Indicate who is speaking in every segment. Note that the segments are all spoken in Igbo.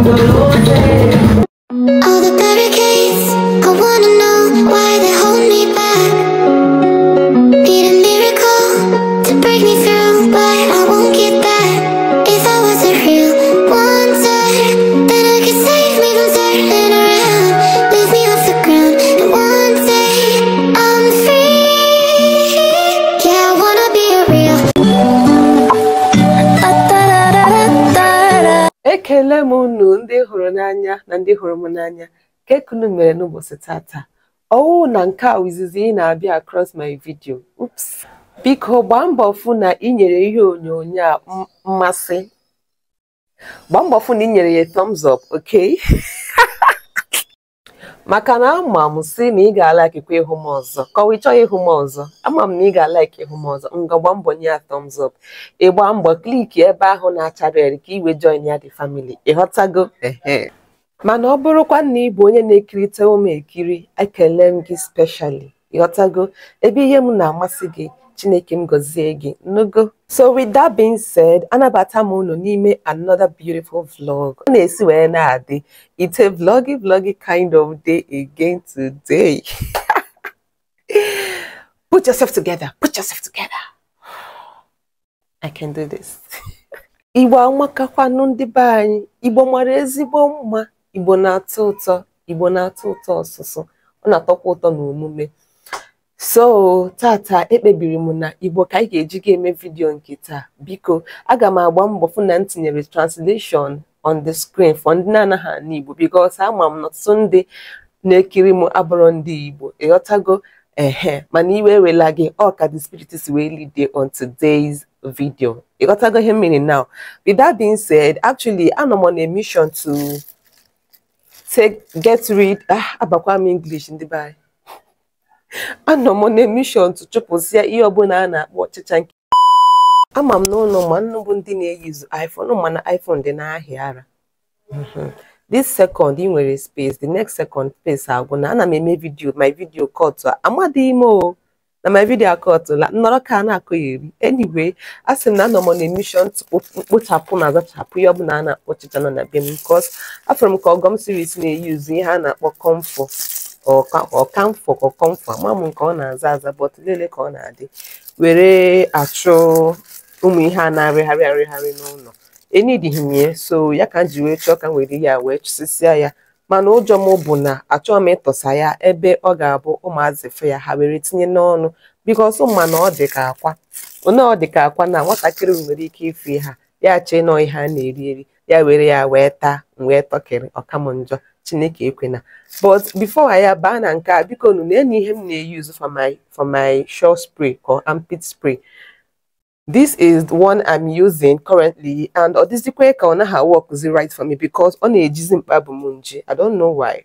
Speaker 1: All the barricades, I wanna know. ekele m unu ndị hụrụ n'anya na ndị hụrụ m n'anya nke kunu mere n'ụbọchị tata ọwụ na nke a izizi ị na-abịa across my video ups biko gbaa mbọ na ị nyere ihe onyonyo a mmasị gbaa mbọ fụ na ị nyere ya thumbs oke. maka na ama m si na ị ga-alaikikwa ịhụ m ọzọ kọwa ị chọghị ịhụ m ọzọ ama m na ị ga-alaik ịhụ m ọzọ m gbaa mbọ nye ya thumbs up ịgba mbọ kliki ebe ahụ na-acha red ka iwe join ya dị family ịghọtago mana ọ bụrụkwa na ị bụ onye na-ekirịta ụmụ ekiri ekele m gị speshali ịghọtago ebe ihe m na-amasị gị chineke m gọzie gị n'ogo so with that being said anabata m unu n'ime another beautiful vlog ọ na-esi wee na-adị ite vloggy vloggy kind of day again today put yourself together put yourself together i can do this igbo amakakwanụ ndị be anyị igbo mara ezigbo mma igbo na-atọ ụtọ igbo na-atọ ụtọ ọsụsụ ọ na-atọkwa ụtọ omume. so tata ekpebiri m na igbo ka anyị ga-eji ga-eme vidiyo nke taa biko aga m agba mbọ fụ na m tinyere translation on the screen for ndị na-anaghị ana igbo because ama m na ọtụtụ ndị na-ekiri m abụrụ ndị igbo ịghọtago ehe mana iwe ewela gị ọ ka the spirit is really there on today's video ịghọtago ihe mmiri now with that being said actually anọ m on a mission to take get rid ah abakwa m english ndị be anyị anọ m n'emishọn tụchụpụsịa ihe ọbụla a na-akpọ ọchịcha nke ama m n'ụlọ ma bụ ndị na-eyizu iphone mana iphone dị n'ahịa ara this second ị nwere space the next second space agwụ na ana m eme vidio my vidio kọtụ amadịghị m o na my vidio akọtụla nnọrọ ka a na-akọ ya a sị m na anọ m na emishọn mkpochapụ na azachapụ ihe ọbụla a na-akpọ ọchịcha nọ na be m because afọrọ m ka ọgọm siris na-eyuzu ihe a na-akpọ comfort Ọka ka mfọ ka mfọ ama m nke ọ na-aza aza bọt lele ka ọ na-adị were achụ ụmụ ihe a na-arịgharị arịgharị n'ụlọ enyidighị m ya so ya ka m ji wee chọọ ka m were ya wee chụsịsịa ya mana ụjọ m bụ na achọghị m ịtọsa ya ebe ọ ga-abụ ụmụazị fe ya ha were tinye n'ọnụ biko bikos mana ọ dị ka akwa one ọ dị ka akwa na nwatakịrị nwere ike ife ha ya chee nọ ihe a na-eri eri ya were ya wee taa wee tọkịrị ọkam njọ chineke ekwena but before ya baa na nke a na-enye ihe m na-eyuzu for my for my shore spray or armpit spray this is the one i'm using currently and ọ dịzikwe ka ọ naghị right for me because ọ na-ejizi mkpabụ m nje i don't know why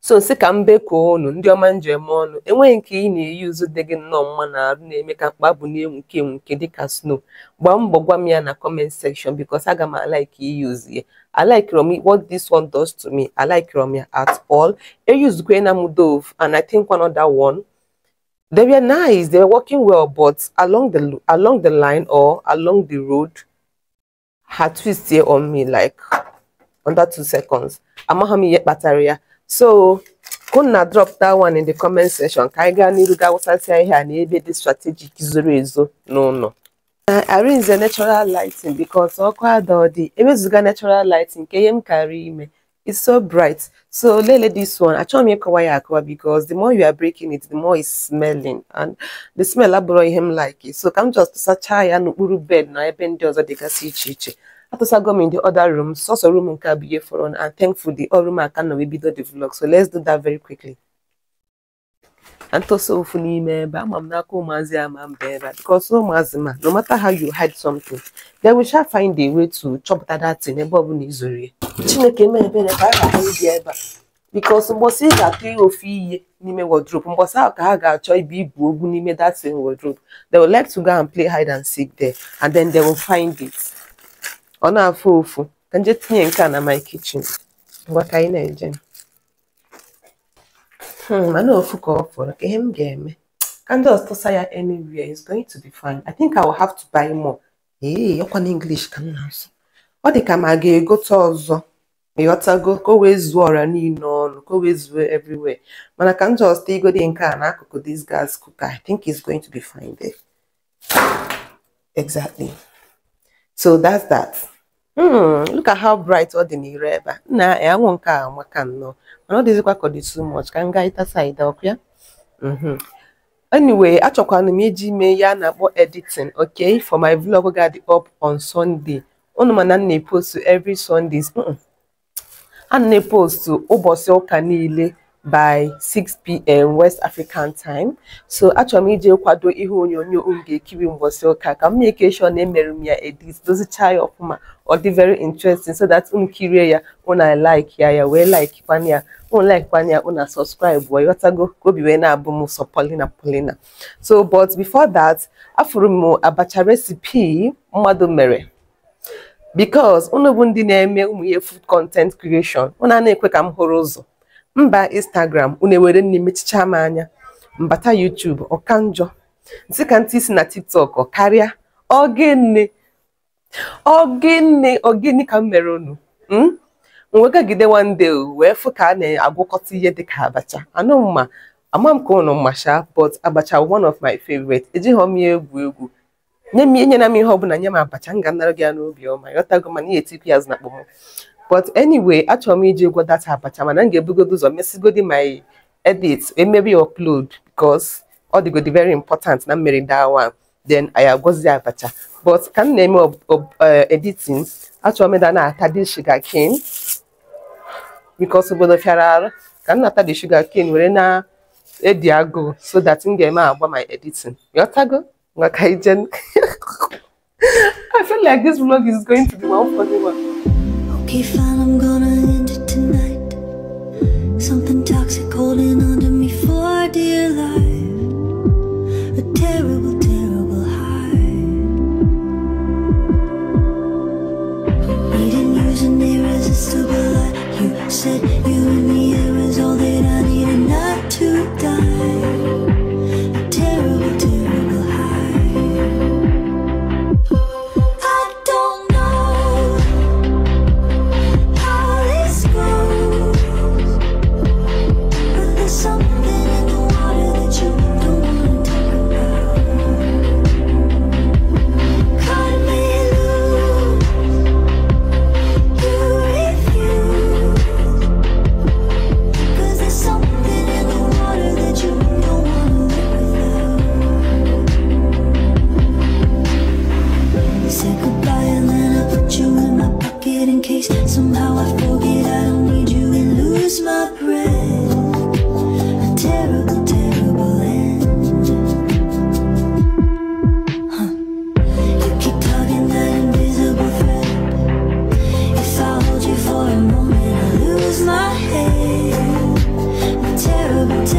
Speaker 1: so si ka m ka unu ndị ọma njem ọnụ enweghị nke ị na-eyuzu dị gị nnọọ mma na arụ na-eme ka mkpabụ na nke enwuke dịka snow gbaa mbọ gwa m ya na comment section because aga m alaiki iyuzu ya I like Romy. what this one does to me, I like Romy at all. Eyus Gwena Mudov, and I think one other one. They were nice, they were working well, but along the along the line or along the road, had twist here on me like under two seconds. Amahami yet bataria. So Kuna drop that one in the comment section. Kaiga niru ga wasati here and ebe this strategic is ezo. No, no. Uh, arrange the natural lighting because ọkụ the. ewezuga natural lighting a natural lighting. karịa ime it's so bright so lele this one told m it's ya akọwa because the more you are breaking it the more it's smelling and the smell abụrọ ihe like like so come just such sachaa ya n'okpuru bed na ebe ndị ọzọ dịgasị see iche atụsago m in the other room So so room nke a bụ ihe and thankful the room aka nọ wee bido the vlog so let's do that very quickly and tosa ofu n'ime ebe ama m n'aka ụmụazị ama mba ebe a because ụmụazị ma no matter how you hide something they will shall find a way to chọpụta that thing ọ bụla izuru ya chineke mee ebere ka a ga-ahụ ibi ebe a because mgbọsị ị ga-atụ ihe ofu ihe n'ime wardrobe mgbọsị ahụ ka ha ga-achọ ibi ibu ogwu n'ime that same wardrobe they will like to go and play hide and seek there and then they will find it ọ na-afụ ofu ka nje tinye nke a na my kichin, ngwa ka anyị na-eje Hmm, mana ofu ka ọ fọrọ ka ihe m ga-eme candles tụsa ya anywhere is going to be fine i think i will have to buy more ee ọkwa na english ka m na-asụ ọ dị ka ma ga-egote ọzọ ịghọtago ka o wee zuo ọra niile ọnụ ka o wee zuo everywhere mana ka m just igode nke a n'akụkụ this gas cooker i think is going to be fine there exactly so that's that Hmm, look at how bright ọ dị n'ire ebe a nna e, anwụ nke a amaka nnọọ mana ọ dịzikwa ka dị too much ka m gaa ịtasa ide ya hmm. anyway achọkwana m iji mee ya a na-akpọ editing okay for my vlog ga-adị up on Sunday unu mana m na-epostu every Sundays ana hmm. m na-epostu ụbọchị ụka niile by 6pm west african time so achọrọ m ije kwado ihe onyonyo m ga-ekiri mbọsị ụka ka m na-ekeshọ na emere m ya edit dozicha ya ọfụma ọ dị very interesting so that unu kirie ya unu like ya ya wee like kwana ya unu like kwana ya unu subscribe wee ghọtago ka obi wee na-abụ m sọ polina polina so but before that afụrụ m abacha recipe mmadụ mere because unu bụ ndị na-eme ụmụ ihe food content creation unu a na-ekwe ka m hụrụ ụzọ mba Instagram unu ewere nne mechicha m anya mbata YouTube ọka njọ ntị ntị isi na TikTok karịa ogene ogene ogene ka m mere unu mwegagide hmm? wande wee fụ ka a na-agwakọta ihe dị ka abacha anụ mma ama m ka unu masha but abacha one of my favorite ejighị m ya egwu egwu nye m m ihe ọbụla nye m abacha m ga-anara gị ya n'obi ọma ghọtago mana ihe etikwu ya azụ na akpọm but anyway achọrọ m iji ụgwọ data abacha mana m ga-ebugodi ụzọ mesigodi my edits and maybe upload because all the good, the very important I'm marrying that one then I have got agọzi abacha but ka m of eme eh, editing Actually, I'm going to dị sugar cane because obodo fịara arụ ka m na-ata dị sugar cane were na edi agụụ so that m ga-eme agba my editing ghọtago maka ije I feel like this vlog is going to be one for the one. Keep fine, I'm gonna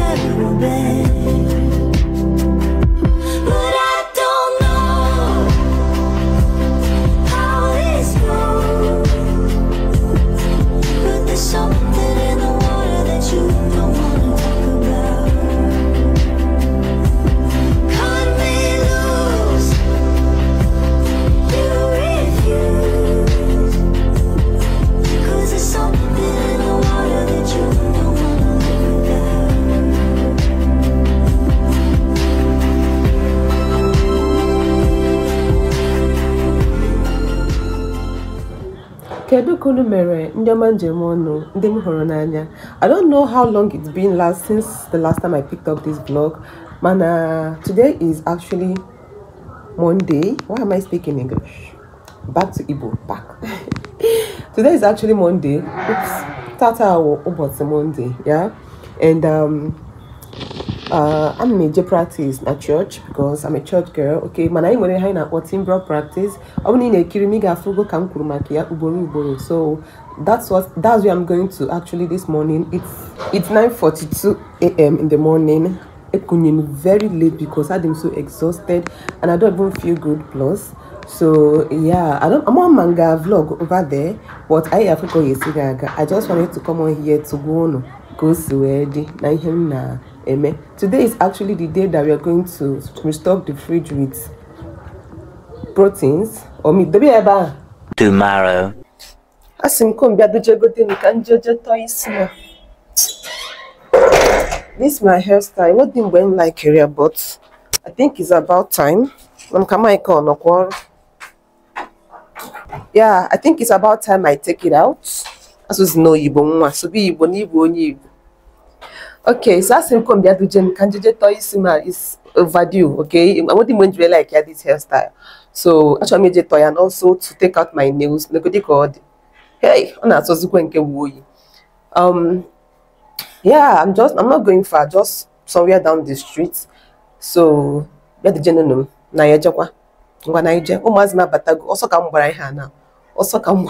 Speaker 1: terrible, babe. mere ndị ọnụ ndị m hụrụ n'anya I don't know how long it's been last since the last time I picked up this blog mana today is actually Monday why am I speaking English back to Igbo back today is actually Monday Oops. tata ụbọchị Monday yeah and um, uh, I'm major a day practice at church because I'm a church girl okay mana anyị nwere ihe anyị na-akpọ timbral practice I'm na ị na-ekiri m ị ga-afụgo ka m so that's what that's where I'm going to actually this morning it's it's 9:42 a.m. in the morning ekunye very late because I'm so exhausted and I don't even feel good plus so yeah i don't i'm on manga vlog over there but i africa yesigaga i just wanted to come on here to go on go see Na the Eme. Today is actually the day that we are going to restock the fridge with proteins or meat. Debi eba. Tomorrow. Asị m kombi adoche gote m ka njojo tọọ na. This my hairstyle. What didn't when like career, but I think it's about time. I'm coming on a call. Yeah, I think it's about time I take it out. As was no Igbo nwa, so be Igbo na Igbo onye Igbo. Okay, so that's him come the Jen Kanjeje Toyisima is overdue. Okay, I want him when like this hairstyle. So actually made toy and also to take out my nails. Nobody called. Hey, on that was going to Um, yeah, I'm just I'm not going far, just somewhere down the street. So yeah, the gentleman na ya jekwa ngwa na ije ụmụazị na-abatago ọsọ ka m gbara ọsọ ka m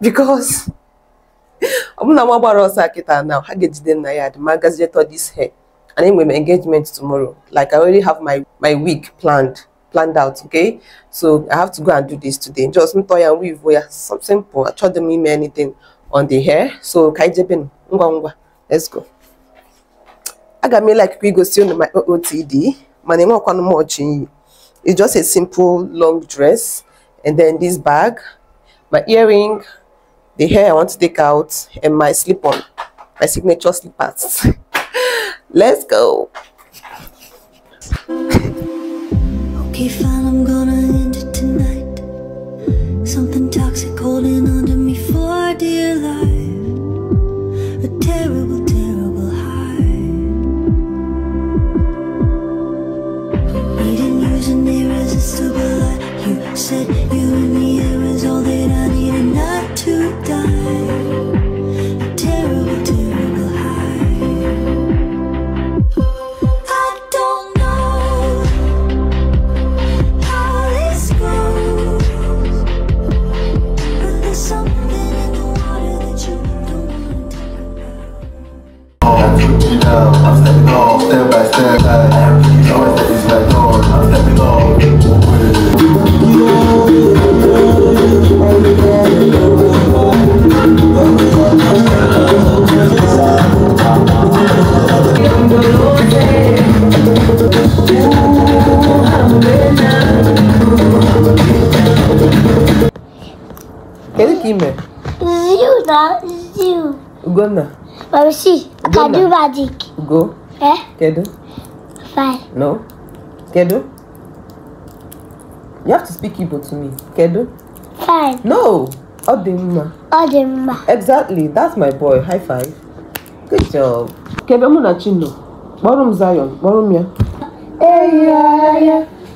Speaker 1: because I'm bụla nwa to ọsọ it now ha ga-ejide nna ya the magazine tọ this hair and then we m engagement tomorrow like i already have my my week planned planned out okay so i have to go and do this today just toy and weave are something simple try to me anything on the hair so ka anyị let's go me like we go see on my O T D. My name is ọchị iyi it's just a simple long dress and then this bag my earring the hair I want to take out and my slip on my signature slippers let's go okay fine I'm gonna Ugonna. Mamsi, Kedu magic. Go. Eh? Kedu. Fine. No. Kedu. You have to speak Igbo to me. Kedu. Fine. No. Odimma. Odimma. Exactly. That's my boy. High five. Good job. Kedu mụ na Chinụ. Kpọrọ m Zion. Kpọrọ m ya. Eyi ya ya.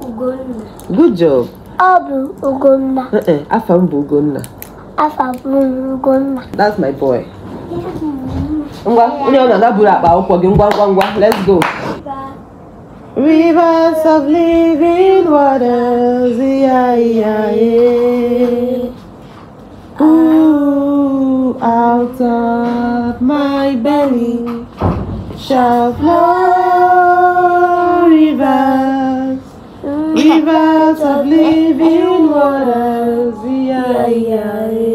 Speaker 1: Ugonna good job ọ Ugonna eh eh afa Ugonna Ugonna that's my boy let's go Rivers of living waters, yeah, yeah, yeah. Ooh, out of my belly shall flow rivers, rivers of living waters. Yeah, yeah, yeah.